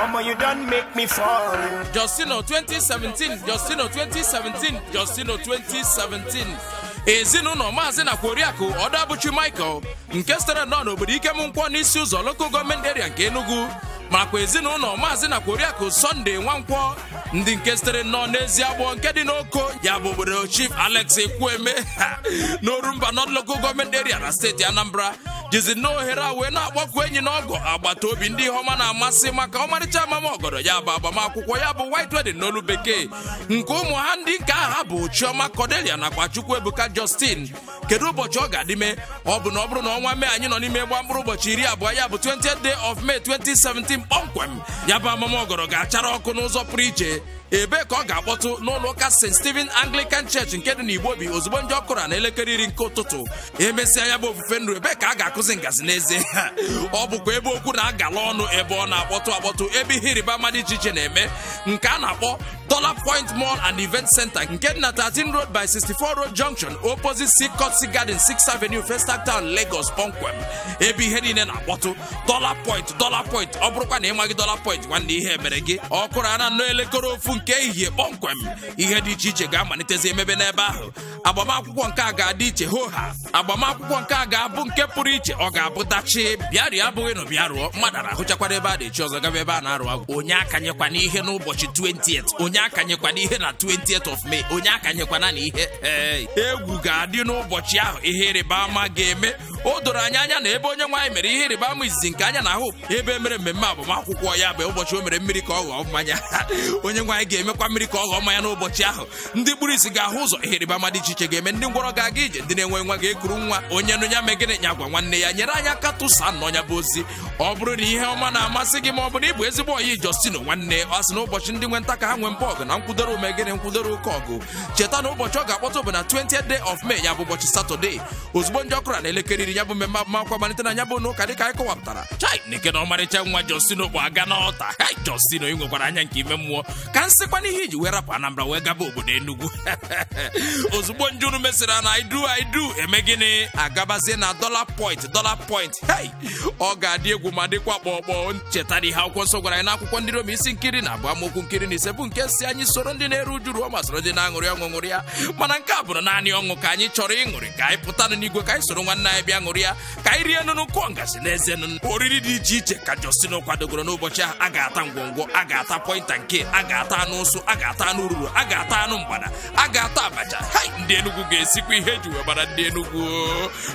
Mama, you make me fall. Justino 2017, Justino 2017, Justino 2017. ezinụlọ maazị na kworiakụ ọdabụchi michael nke sitere nọ n'obodo ikem nkwọ n'isi ụzọ loko gọọmenti eria nke enugu makwa ezinụlọ maazị na kworiakụ sọnde nwankwọ ndị nke sitere nọ n'ezi agbọ nke dị n'oko ya bụ obodo chief alex ekwueme n'orumba nọd gọọmenti eria na steeti anambra jizi a wee na-akpọkwu enyi na ọgọ agbata obi ndị ihe ọma na-amasị maka ọmarịcha amamọgọdọ ya bụ agbamakwụkwọ ya bụ white wedding n'olu bekee nke ụmụ ha ndị nke aha bụ chioma kodelia nakwa chukwu ebuka justin kedu ụbọchị ọ ga-adịme ọ bụ na ọ bụrụ na ọnwa mee anyị nọ n'ime gba mkpụrụ ụbọchị iri abụọ ya bụ 20th day of May 2017 kpọmkwem ya bụ amamọgọdọ ga-achara ọkụ n'ụzọ pụrụ iche ebee ka ọ ga-akpọtụ n'ụlọ ụka st steven's anglican church nke dị obi ozugbo ndị ọkụra na elekere iri nke ụtụtụ emesịa ya bụ ofufe nru ebee ka a ga-akụzi ngazi n'ezie ọ bụkwa ebe okwu na-agala ọnụ ebe ọ na-akpọtụ akpọtụ ebe ihe ịrịba iche na-eme nke a na-akpọ Dollar Point Mall and Event Center nke dị na 13 Road by 64 Road Junction opposite Seacotsi Garden 6th Avenue Festac Town Lagos kpọmkwem ebe ihe niile na-akpọtụ Dollar Point Dollar Point ọ bụrụkwa na ịmaghị Dollar Point nwanne ihe e mere gị ọ na ana nnọọ elekere ofu nke ehihie kpọmkwem ihe dị iche iche ga-amalitezi emebe n'ebe ahụ agbamakwụkwọ nke a ga-adị iche ho ha agbamakwụkwọ nke a ga-abụ nke pụrụ iche ọ ga-abụ dachi bịarịa abụghị na bịa rụọ mmadụ arahụchakwara ebe a na-echi ọzọ gaba ebe a na-arụ agwụ onye akanyekwana ihe n'ụbọchị 20th onye onye akanyekwana ihe na 20th of May onye akanyekwana na ihe eh, egwu ga-adị n'ụbọchị ahụ ihe ịrịba ama ga-eme o doro anyị anya na ebe onye nwaanyị mere ihe ịrịba ama izizi nke anya na ahụ ebe mere mmemme agbamakwụkwọ ya bụ ụbọchị o mere mmiri ka ọ ghọọ mmanya onye nwaanyị ga-emekwa mmiri ka ọ ghọọ mmanya n'ụbọchị ahụ ndị gburu isi ga-ahụ ụzọ ihe ịrịba ama dị iche iche ga-eme ndị ngwọrọ ga-aga ije ndị na-enwe nwa ga-ekuru nwa onye nụ ya megịnị nya gwa nwanne ya nyere anya aka tụsa nọ ya bụ ozi ọ bụrụ na ihe ọma na-amasị gị ma ọ bụrụ na ezigbo ọyị Justino nwanne ọ sị na ụbọchị ndị nwe nta ka ha nwee mba ọgụ na nkwudoro omegịnị nkwudoro ụka ọgụ cheta na ụbọchị ọ ga-akpọta bụ na 20th day of May ya bụ ụbọchị Satọde ozugbo ndị ọkụra na elekere mechiri ya bụ mmemme agbamakwụkwọ malite na ya bụ n'ụka anyị kọwapụtara chai na na ọmarịcha nwa Josino bụ aga n'ọta ha Josino ị nwekwara anya nke ime mmụọ ka nsịkwa n'ihe iji wee rapụ Anambra wee gaba obodo Enugu ozugbo njunu mesịrị na idu idu eme gịnị agabazie na dọla point dọla point hei ọ ga-adị egwu ma dịkwa kpọkpọ ncheta na ihe akwụkwọ nsọ gwara anyị n'akwụkwọ ndị Rom isi nkiri na abụ amaokwu nkiri na ise bụ nke si anyị soro ndị na-eru uju ruo ma soro ndị na-aṅụrị ọṅụṅụrị ya mana nke a bụrụ naanị ọṅụ ka anyị chọrọ ịṅụrị ka anyị pụtanụ n'igwe ka anyị soro nwanne anyị bịa ṅụrịa ka anyị rie nụnụ kụọ n'eze nụnụ oriri dị iche iche ka Justin kwadogoro n'ụbọchị ahụ a ga-ata ngwongwo a ga-ata pọinta nke a ga-ata anụ ụsụ a ga-ata anụ ruru a ga-ata anụ mgbada a ga-ata abacha ndị Enugu ga-esikwa ihe eji wee ndị Enugu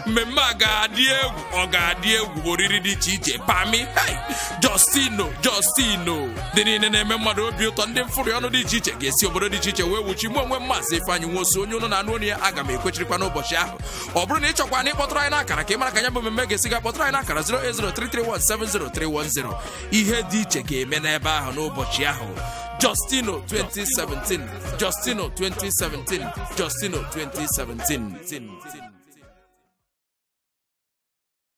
mmemme a ga-adị egwu ọ ga-adị egwu oriri dị iche iche pami hai Justino Justino dị niile na-eme mmadụ obi ụtọ ndị mfụrị ọnụ dị iche iche ga-esi obodo dị iche iche wee wuchi mụ onwe m Ifeanyị Nwosu onye na anụ onye ya aga m ekwechirikwa n'ụbọchị ahụ ọ bụrụ na ị chọkwa na ịkpọtụrụ anyị n'aka akara ka ị mara ka ya bụ mmemme ga-esi ga kpọtara anyị na akara 08033170310 ihe dị iche ga-eme n'ebe ahụ n'ụbọchị ahụ Justino 2017 Justino 2017 Justino 2017